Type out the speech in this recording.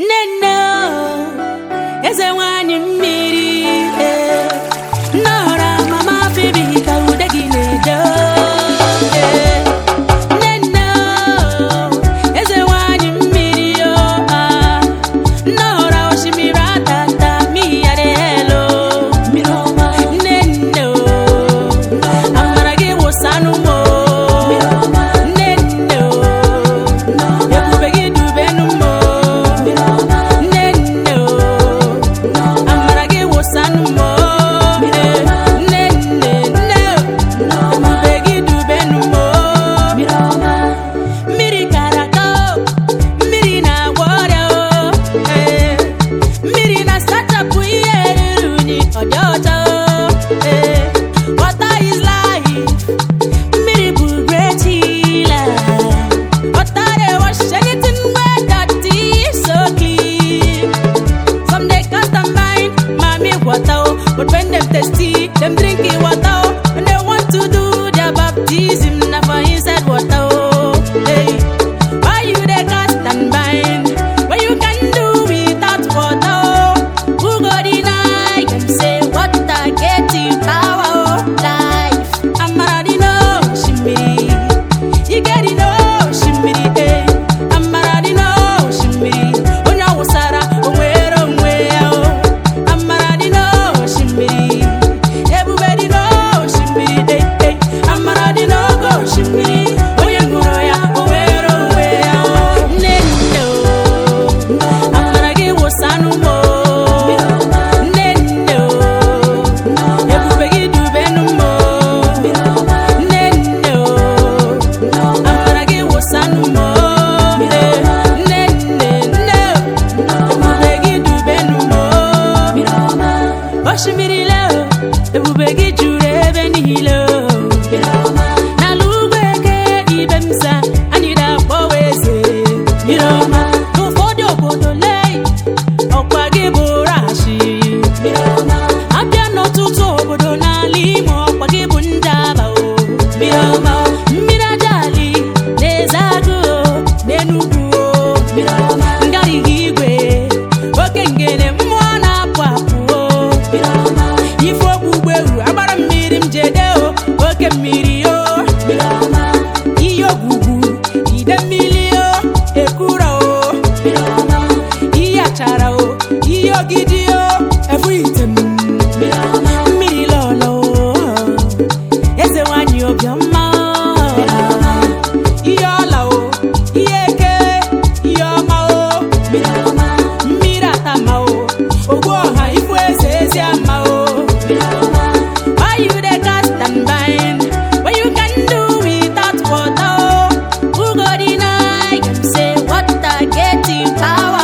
nne nne eze nwanyị mmiri. But when them thirsty, them drink osimiri le ebube gị juru ebe niile o Sawa